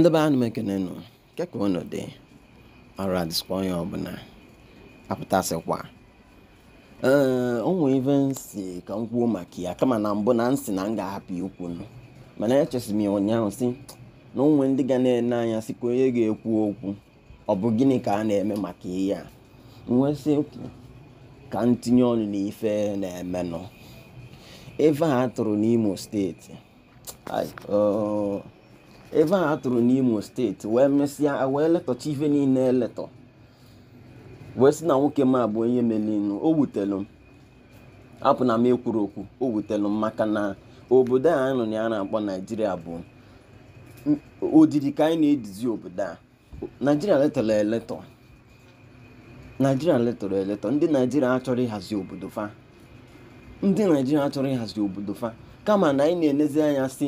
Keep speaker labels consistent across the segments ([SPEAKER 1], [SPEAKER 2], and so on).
[SPEAKER 1] ndị be anụ m ekenenụ nke ka unu dị ọrụ adịsikwa onye ọbụla apụtasịkwa ee onwe ive si ka m kwuo maka ya kama na mbụ na nsị na m ga-ahapụ ikwu nụ mana echesiri m ya ụnyaahụ si na onwe ndị ga na-ene anya si onye ga-ekwu okwu ọ bụ gịnị ka a na-eme maka ihe a nwesị ekwu ka m tinye ọnụ n'ife na-emenụ ife a tụrụ n'Imo steeti ebe a atụrụ n'Imo steeti wee mesịa wee letọcha ife niile eletọ wee si na nwoke m abụ onye melinu o wutelu m apụ na m ekwuru okwu o wutelu m maka na obodo a nọ na ya na-akpọ naijiria bụ odidi ka anyị na-edizi obodo a naijiria letọrọ eletọ naijiria letọrọ eletọ ndị naijiria achọrọ ịhazi obodo fa ndị naijiria achọrọ ịhazi obodo fa kama na anyị na-enezi anya si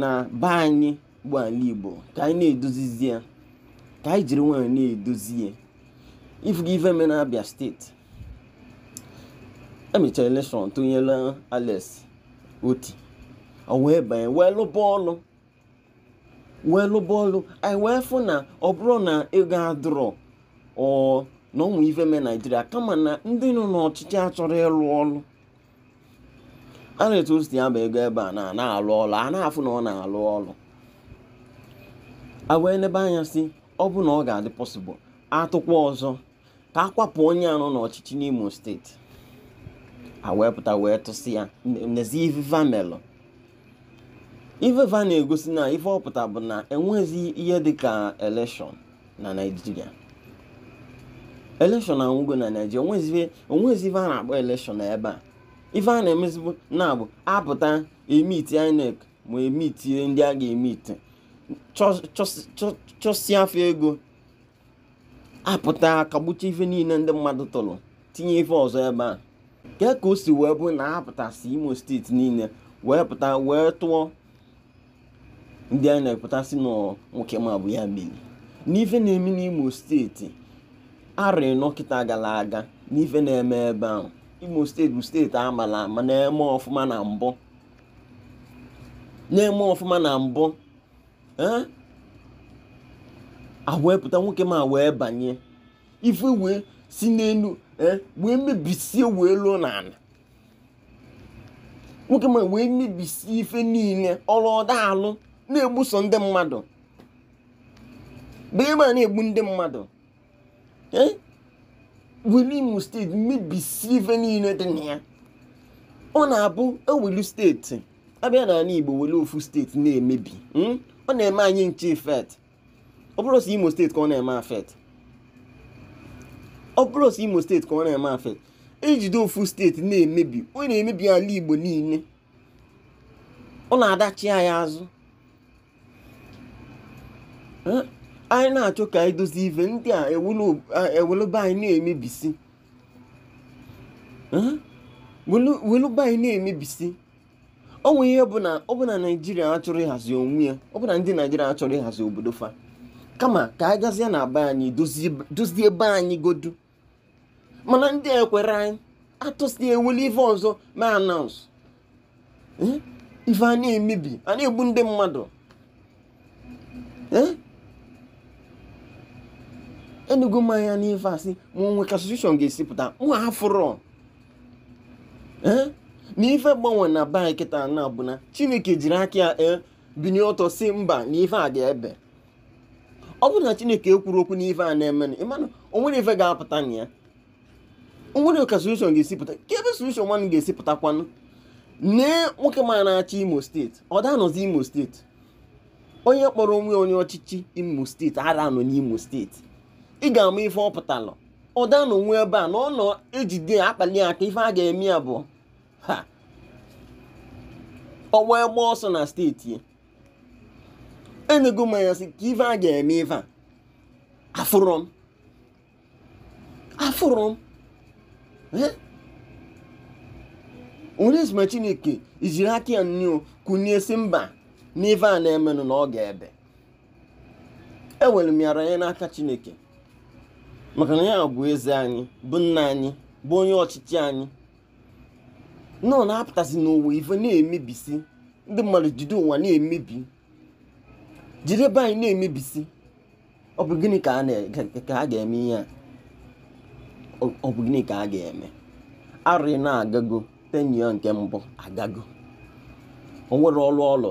[SPEAKER 1] na be anyị bụ ala igbo ka anyị na-edozizi ya ka anyị jiri nwayọọ na-edozi ya ifuga ife me na abịa steeti emechara elekshọn tụnyela alex oti o wee banye wee lụba ọlụ wee lụba ọlụ anyị wee fụ na ọ bụrụ na ego adụrọ ọ na ụmụ ife mee naijiria kama na ndị nọ n'ọchịchị achọrọ ịlụ ọlụ a na-etu o ego ebe a na-alụ ọlụ a na-afụ na ọ na-alụ ọlụ a wee lebe anya si ọ bụ na ọ ga-adị pọsịbụl atụkwa ọzọ ka a kwapụ onye anọ n'ọchịchị n'Imo steeti a wee pụta wee tụsị ya n'ezi iveva melụ iveva na-egosi na ife ọpụta bụ na enwezi ihe dị ka eleshọn na Naịjirịa eleshọn anwụgo na Naịjirịa onwezi ife a na-akpọ eleshọn ebe a ife a na-emezibụ na-abụ apụta emiti INEC ma emitie ndị a ga-emiti afọ ego apụta akagbucha ife niile ndị mmadụ tụrụ tinye ife ọzọ ebe a ke ka o si wee bụ na apụtasị imo steeti niile wee pụta wee tụọ ndị a na-epụtasị ma bụ ya meri n'ife na-eme n'imo steeti arị nọkịta gara aga n'ife na-eme ebe ahụ imo steeti bụ steeti amala ama na-eme ọfụma na-eme ọfụma na mbụ pụta nwoke ma wee banye ife wee si n'elu wee mebisie wee lụọ n'ala nwoke ma wee mebisie ife niile ọda alụ na-egbuso ndị mmadụ bema na-egbu ndị mmadụ were imo steeti mebisie ife niile dị na ya ọ na-abụ ewelu steeti abịa n'ala Igbo were ofu steeti na-emebi hmm? ọ na-eme anyị nche fet ọ bụrụ si Imo steeti ka ọ na-eme afet ọ bụrụ si Imo steeti ka ọ na-eme afet ejide ofu steeti na-emebi ọ na-emebi ala Igbo niile ọ na-adachi anyị azụ hmm? anyị na-achọ ka anyị dozie ive ndị a ewelụba anyị na-emebisi hmm? welụba anyị na-emebisi ọ ihe bụ na ọ bụ na naijiria achọrọ ịhazi onwe ya ọ bụ na ndị naijiria achọrọ ịhazi obodo fa kama ka a gazie na be anyị dozie ebe anyị godu mana ndị ekwere anyị atụsi ewuli ife ọzọ ma anaụs eh? ife a na-emebi a na-egbu ndị mmadụ eh? enugo mmanya anya n'ife asị ma onwe ka asosieshọn ga esipụta pụta mụ afụrọ na ife gbanwe na baa kịta na bụ na chineke jiri aka ya e binye ọtọ si mba na ife a ga-ebe ọ bụrụ na chineke ekwuru okwu na ife a na-emenụ ịmanụ onwere ife ga-apụta na ya onwere ka solushon ga-esi pụta ka ebe solushon nwanne ga-esi pụtakwanụ nne nwoke ma na-achị imo steeti ọ danọzi imo steeti onye kpọrọ onwe onye ọchịchị imo steeti ara anọ n'imo steeti ị ga-ama ife ọ pụtala ọ danọ nwe ebe a na ọ nọ ejide akpali aka ife a ga-eme abụọ ha ọ ọsọ na steeti enego mmanya sị ka ife a ga-eme ife a afụrụ m afụrụ m orisma chineke ijiri aka ya nnu kụnye si mba n'ife a na-emenụ na ọ ga-ebe enwere m yara n'aka chineke maka na ya bụ eze anyị bụ nna anyị bụ onye ọchịchị anyị nọ na-apụtasị n'ụwa ife na-emebisi ndị mmadụ jide ụwa na-emebi jide be anyị na-emebisi ọ bụ ka a ga-eme ihe a ọ bụ gịnị ka a ga-eme arị na-agago tenyo nke mbụ agago o nwere ọlụ ọlụ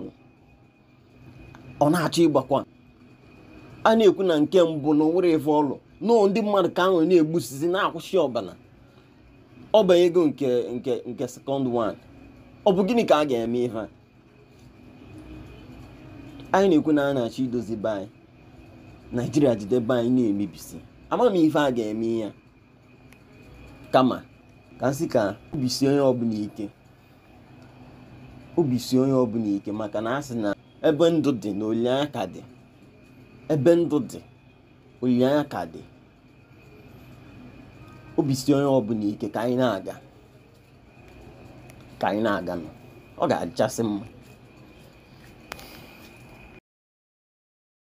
[SPEAKER 1] ọ na-achọ ịgbakwa a na-ekwu na nke mbụ na o nwere ife ọlụ nọọ ndị mmadụ ka ahụ na-egbusisi na-akwụsị ọbala ọ ego nke nke nke sekọnd wan ọ bụ gịnị ka a ga-eme ihe anyị na-ekwu na a na-achọ idozi bai naijiria jide be anyị na-emebisi ama m ife a ga-eme ya kama ka nsị ka obisi onye ọbụla ike obisi onye ọbụla ike maka na a sị na ebe ndụ dị na olileanya ka dị ebe ndụ dị olileanya ka dị obi si onye ọbụla ike ka anyị na-aga ka anyị na-aga ọ ga-adịchasị mma